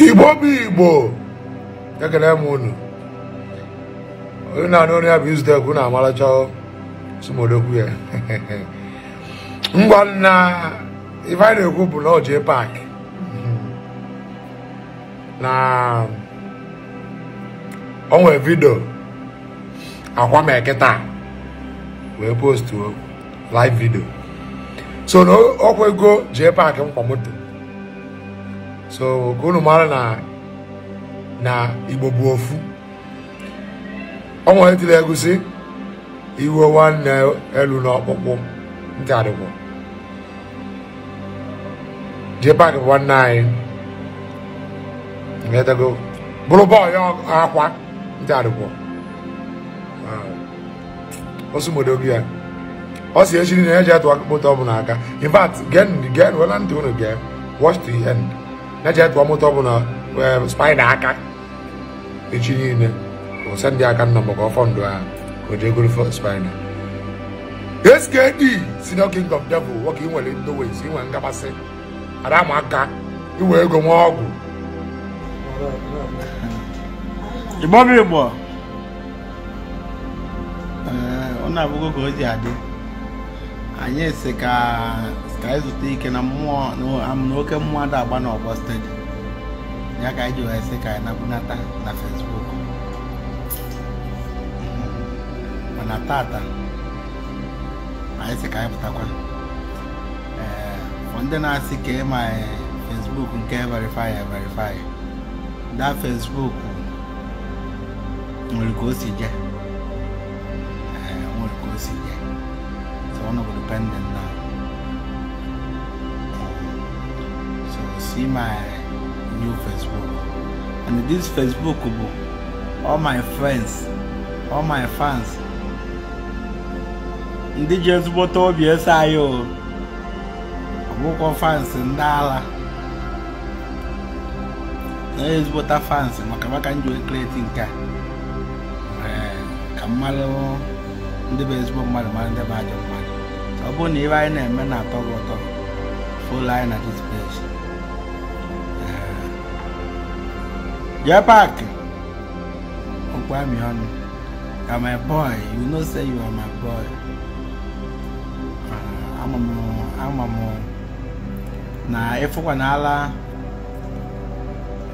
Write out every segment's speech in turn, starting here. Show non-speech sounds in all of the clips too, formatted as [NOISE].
igbo bụ igbo ekele m unu onye na-anụ onye ya bụ ekwu na amaracha sumodokwu ya [LAUGHS] ngwa na ife anyị na-ekwu bụ na ọjị pak na onwe vidio akwa m eketa wee postuo live vidio so na ọkwa ego jee pak mkpa moto so ka unu mara na na igbo bụ ofu ọnwa etiri egusi iwe nwanne elu n'ọkpụkpụ nke adịgbo jepak bụ nwanne anyị edego bụrụ bọọlụ akwa nke adịgbo osimodo gị ya ọ si echi na eji atụ akpụkpọ ọbụla aka in fact gen gen wela ntị unu gee watch the end na-eche ọmụta ọ bụ na um, spaina aka echi niile ụsa ndị aka nna maka ọfọ ndụ ha oje o jee goro skd si na king of devil nwoke nwere ndowezi inwe nkapasị ara ma aka iwe ego nwa ọgwụ ịgbọba ịgbọ ọ na-abụgo ka o ji adị anyị si ka anyị zụta ike na mmụọ na oke mmụọ ada agba n'ọgbọ steeti ya ka anyị ji wee sị ka anyị nabunata na fesbuk mana tata anyị si ka anyị pụtakwa ee ndị na-asị ka ịma e, fesbuk nke verify verify da fesbuk nwere ka o si je nwere ka o si je Honorable Dependent now. So see my new Facebook. And this Facebook, all my friends, all my fans, ndị ji ezigbo obi ese anyị o ọbụkwọ fans ndị ala na ezigbota fans maka maka m ji wee kreti nke a ka mmalụ ndị bụ ezigbo mmadụ mara ndị bụ ajọ ọ bụrụ na ibe anyị na-eme na-atọ gị ụtọ folo anyị na this place jee paakị okwu amị ọnụ ka my boy you know say you are my boy ama m na ịfụkwa na ala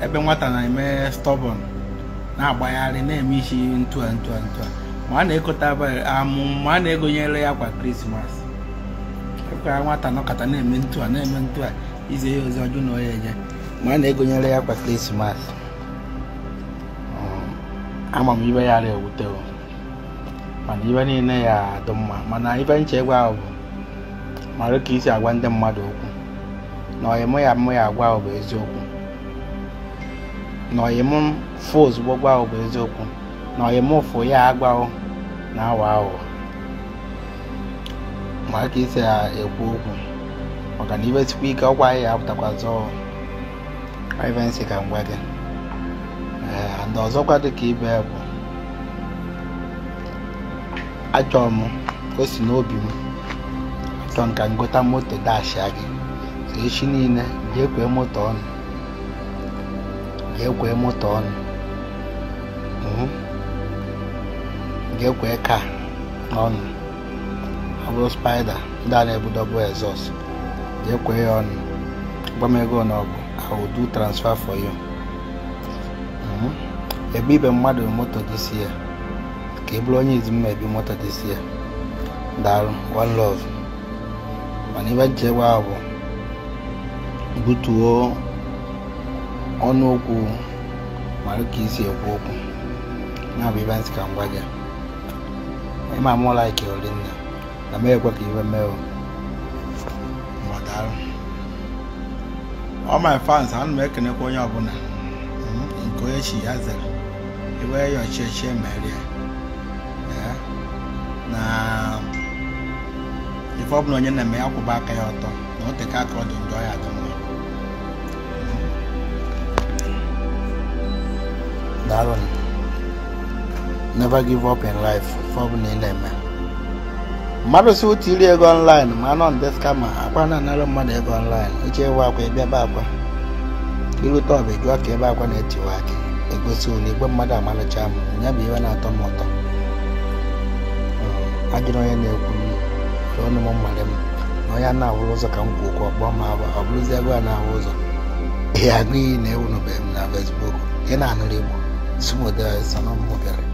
ebe nwata na-eme stọbọn na-agbagharị na-eme isi ntua ntua ntua ma a na-ekonyere ya kwa krismas ka nwata nọkọta na-eme ntụ a na-eme ntụ a ize ihe ozi ọjụ na ọya eje ma a na-egonyere ya kwa krismas um, ama m ibe ya ara ewute mana ibe niile ya adụ mma mana ibe nchegbu ahụ bụ mara ka isi agwa ndị mmadụ okwu na ọyịm ya mụ ya agwa ahụ bụ eziokwu na ọyịm fụ ozugbo gwa ahụ bụ eziokwu na ọyịm ụfụ ya agwa ahụ na awa ahụ ma aka isi ya ekwu okwu maka na iwesikwa ike ọkwa anyị ya apụtakwazi privacy ka ngwa gị ee eh, ndị ọzọkwa dịka ibe bụ achọrọ m o si n'obi m achọrọ nka ka m gota moto dashia gị echi niile jee kwee moto ọnụ jee kwee moto ọnụ hmm? jee kwee ka ọnụ. ọ bụrụ spaida ndị a na-ebudobụ exos jee kwee ya ọnụ gwa na ọgụ I do transfer for you mhm. ebe ibe mmadụ moto this year ka ị e bụrụ onye izi m ebi moto this year daalụ one love mana ibe nchekwa ahụ bụ butuo ọnụokwu okwu mara ka isi ekwu okwu na bụ ibe nsị ka m gwa gị ịma mụ laiki amaghị ekwe ka iwe mee o ọ my fans ana m ekenekwa onye ọbụla nke onye chi ya zara iwe ya ọchịchị merie na ife ọbụla onye na-eme ya kwụba aka ya ọtọ na o teka aka ọ dị njọ ya dị mma never give up in life ife ọbụla ị mmadụ si otu iri ego ọnlaịn ma anọ nde skama akwa na-anara mmadụ ego ọnlaịn uche ewe akwa ịbịaba akwa irute ọba jụọ ka ebe akwa na-etiwa aka egosi ụlọ igwe mmadụ amalụcha m ya bụ iwe na-atọ m ụtọ ajụrụ onye na-ekwu ọnụ m mmadụ m na onye na-ahụrụ ụzọ ka m kwu okwu ọkpọ ma ọ bụrụzi ego a na-ahụ ụzọ ihe agụ iyi na-ewunubeghị m na Facebook ị na-anụrụ Igbo sumodesanombere